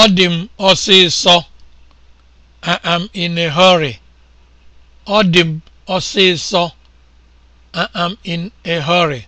Ọ dị m ọsịsọ I am in a hurry. am in a hurry.